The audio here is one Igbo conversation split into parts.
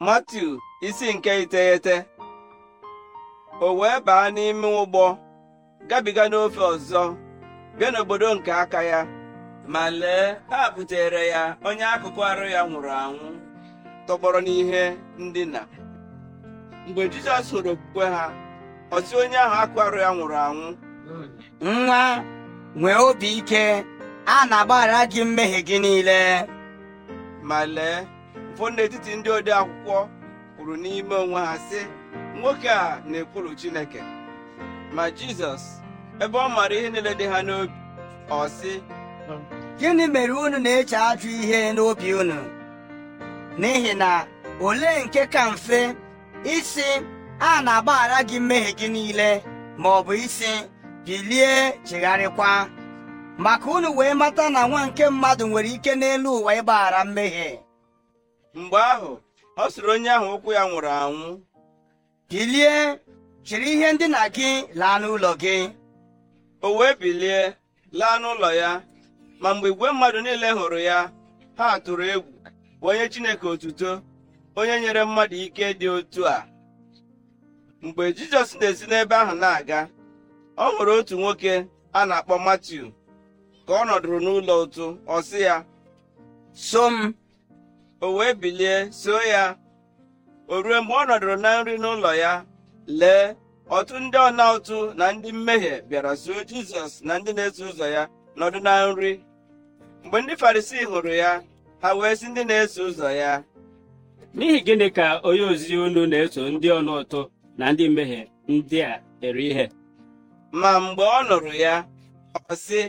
matu isi nke iteghete o wee baa n'ime ụgbọ gabiga n'ofe ọzọ bịa n'obodo nke aka ya ma lee ha butere ya onye akụkụ arụ ya nwụrụ anwụ tọgbọrọ n'ihe ndina mgbe Jizọs hụrụ okwukwe ha ọ onye ahụ akụ arụ ya nwụrụ anwụ nwa nwee obi ike a na-agbaghara gị mmehie gị niile ma lee ụfọdụ n'etiti ndị ode akwụkwọ kwuru n'ime onwe ha sị nwoke a na ekwuru Chineke ma Jizọs ebe ọ maara ihe niile dị ha n'obi ọ sị gịnị mere unu na-eche ajụ ihe n'obi unu n'ihi na olee nke ka mfe isi a na-agbaghara gị mmehie gị niile ma ọ bụ isi bilie chegharịkwa maka unu wee mata na nwa nke mmadụ nwere ike n'elu ụwa ịgbaghara mmehie mgbe ahụ ọ sịrị onye ahụ ụkwụ ya nwụrụ anwụ bilie jiri ihe ndina gị laa n'ụlọ gị o wee bilie laa n'ụlọ ya ma mgbe igwe mmadụ niile hụrụ ya ha tụrụ egwu onye Chineke otuto onye nyere mmadụ ike dị otu a mgbe Jizọs na-esi n'ebe ahụ na-aga ọ nwere otu nwoke a na-akpọ Matiu ka ọ nọdụrụ n'ụlọ ụtụ ọ sị ya so m o wee bilie so ya o ruo mgbe ọ nọdụrụ na nri n'ụlọ ya lee ọtụ ndị ọna ụtụ na ndị mmehie bịara zuo jizọs na ndị na-eso ụzọ ya nọdụ na nri mgbe ndị farisii hụrụ ya ha wee si ndị na-eso ụzọ ya n'ihi gịnị ka onye ozi unu na-eso ndị ọna ụtụ na ndị mmehie ndị a eri ihe ma mgbe ọ nụrụ ya ọ sị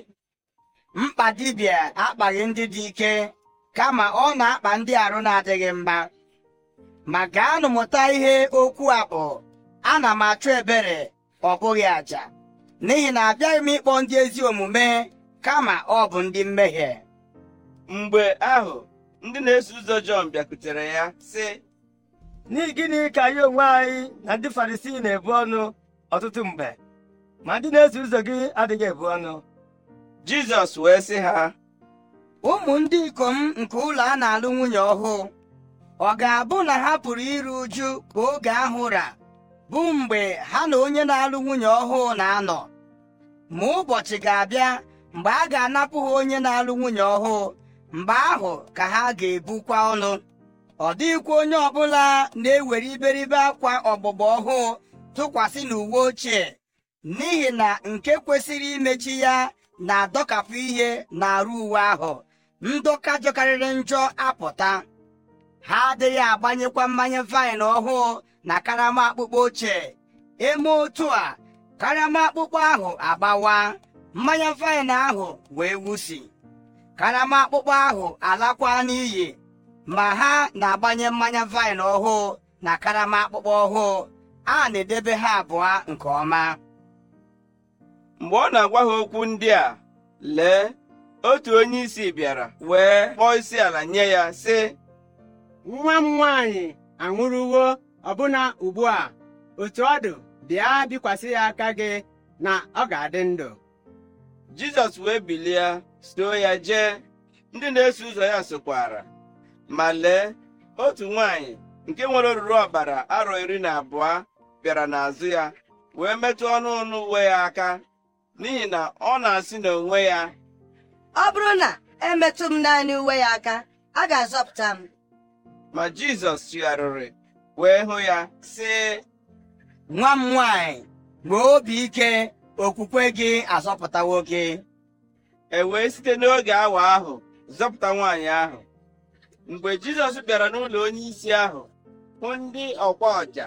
mkpa dibịa akpaghị ndị dị ike kama ọ na-akpa ndị arụ na-adịghị mma ma gaanụ mụta ihe okwu a bụ ana m achụ ebere ọ bụghị àjà n'ihi na abịaghị m ịkpọ ndị ezi omume kama ọ bụ ndị mmehie mgbe ahụ ndị na-eso ụzọ Jọn bịakutere ya sị n'ihi gịnị ka anyị onwe anyị na ndị Farisii na-ebu ọnụ ọtụtụ mgbe ma ndị na-eso ụzọ gị adịghị ebu ọnụ Jizọs wee sị ha ụmụ ndị ikom nke ụlọ a na-alụ nwunye ọhụụ ọ ga-abụ na ha pụrụ iru uju ka oge ahụ ra bụ mgbe ha na onye na-alụ nwunye ọhụụ na-anọ ma ụbọchị ga-abịa mgbe a ga-anapụ ha onye na-alụ nwunye ọhụụ mgbe ahụ ka ha ga-ebukwa ọnụ ọ dịghịkwa onye ọbụla na-ewere iberibe akwa ọgbụgba ọhụụ tụkwasị n'uwe ochie n'ihi na nke kwesịrị imechi ya na-adọkapụ ihe n'arụ uwe ahụ ndụka jọkarịrị njọ apụta ha adịghị agbanyekwa mmanya vaịn ọhụụ na karama akpụkpọ ochie eme otu a karama akpụkpọ ahụ agbawa mmanya vaịn ahụ wee wusi karama akpụkpọ ahụ alakwa n'iyi ma ha na-agbanye mmanya vaịn ọhụụ na karama akpụkpọ ọhụụ a na-edebe ha abụọ nke ọma mgbe ọ na-agwa ha okwu ndị a lee otu onye isi bịara wee kpọọ isi ala nye ya sị nwa m nwaanyị anwụrụwo ọbụna ugbu a otu ọ dụ bịa bikwasị ya aka gị na ọ ga-adị ndụ jizọs wee bilie soo ya jee ndị na-eso ụzọ ya sokwara ma lee otu nwaanyị nke nwere oruru ọbara arọ iri na abụọ bịara n'azụ ya wee metụ ọnụ ọnụ uwe ya aka n'ihi na ọ na-asị n'onwe ya ọ bụrụ na emetụ m naanị uwe ya aka a ga-azọpụta m ma Jizọs chigharịrị wee hụ ya sị nwa m nwanyị nwee obi ike okwukwe gị azọpụtawo gị e wee site n'oge awa ahụ zọpụta nwaanyị ahụ mgbe Jizọs bịara n'ụlọ onyeisi ahụ hụ ndị ọkwa ọja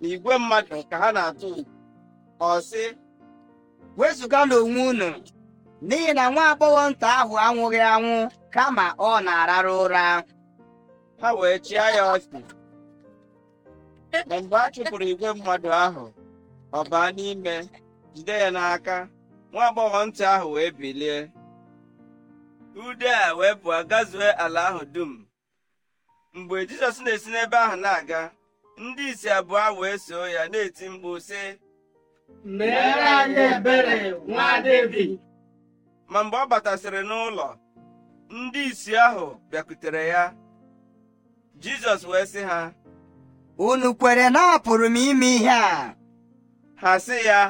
na igwe mmadụ ka ha na-atụ ọ sị wezụga n'onwe unu n'ihi na nwa agbọghọ nta ahụ anwụghị anwụ kama ọ na ararụ ụra ha wee chịa ya Ma mgbe a chụpụrụ igwe mmadụ ahụ ọ baa n'ime jide ya n'aka nwa agbọghọ ntị ahụ wee bilie ude a wee pụọ gazue ala ahụ dum mgbe jizọs na-esi n'ebe ahụ na-aga ndị isi abụọ wee soo ya na-eti mkpu sị. mere anyị ebere nwa Devid ma mgbe ọ batasịrị n'ụlọ ndị isi ahụ bịakutere ya jizọs wee sị ha unu kwere na apụrụ m ime ihe a ha sị ya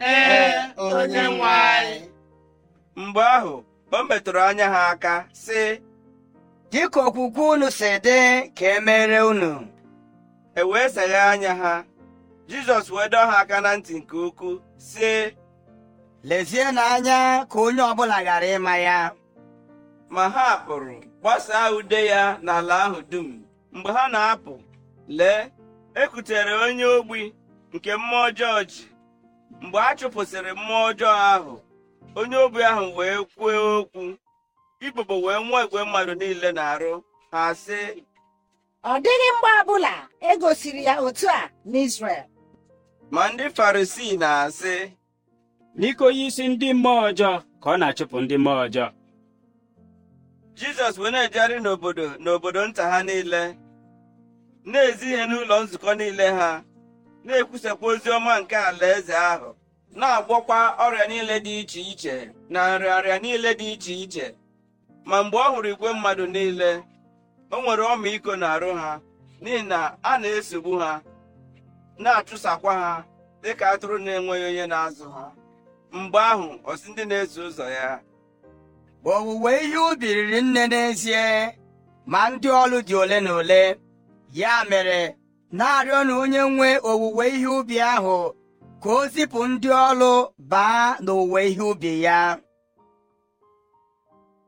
ee onye nwe mgbe ahụ o metụrụ anya ha aka sị dịka okwukwe unu si dị ka e mere unu e wee seghe anya ha jizọs wee dọọ ha aka na ntị nke ukwuu sị lezie n'anya ka onye ọbụla ghara ịma ya ma ha pụrụ gbasaa ude ya n'ala ahụ dum mgbe ha na-apụ lee ekutere onye ogbi nke mmụọ ọjọọ ji mgbe a chụpụsịrị mmụọ ọjọọ ahụ onye ogbi ahụ wee kwuo okwu ikpokpo wee nwee igwe mmadụ niile na-arụ ha sị ọ dịghị mgbe ọbụla e ya otu a n'Izrel ma ndị Farisii na-asị n'iko onye isi ndị mmụọ ọjọọ ka ọ na-achụpụ ndị mmụọ ọjọọ jizọs wee na-ejegharị n'obodo n'obodo nta ha niile na-ezi ihe n'ụlọ nzukọ niile ha na-ekwusakwa ozi ọma nke alaeze ahụ na-agwọkwa ọrịa niile dị iche iche na nrịarịa niile dị iche iche ma mgbe ọ hụrụ igwe mmadụ niile o nwere ọmịiko n'arụ ha n'ihi na a na-esogbu ha na-achụsakwa ha dịka atụrụ na-enweghị onye na-azụ ha mgbe ahụ ọsị ndị na-eso ụzọ ya owuwe ihe ubi riri nne n'ezie ma ndị ọlụ dị ole na ole ya mere na-arịọ na onye nwe owuwe ihe ubi ahụ ka o zipụ ndị ọlụ baa n'owuwe ihe ubi ya